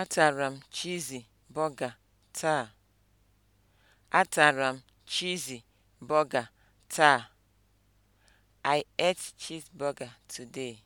Atara m Cheesy taa. Atara m Cheesy burger taa. I ate cheeseburger today.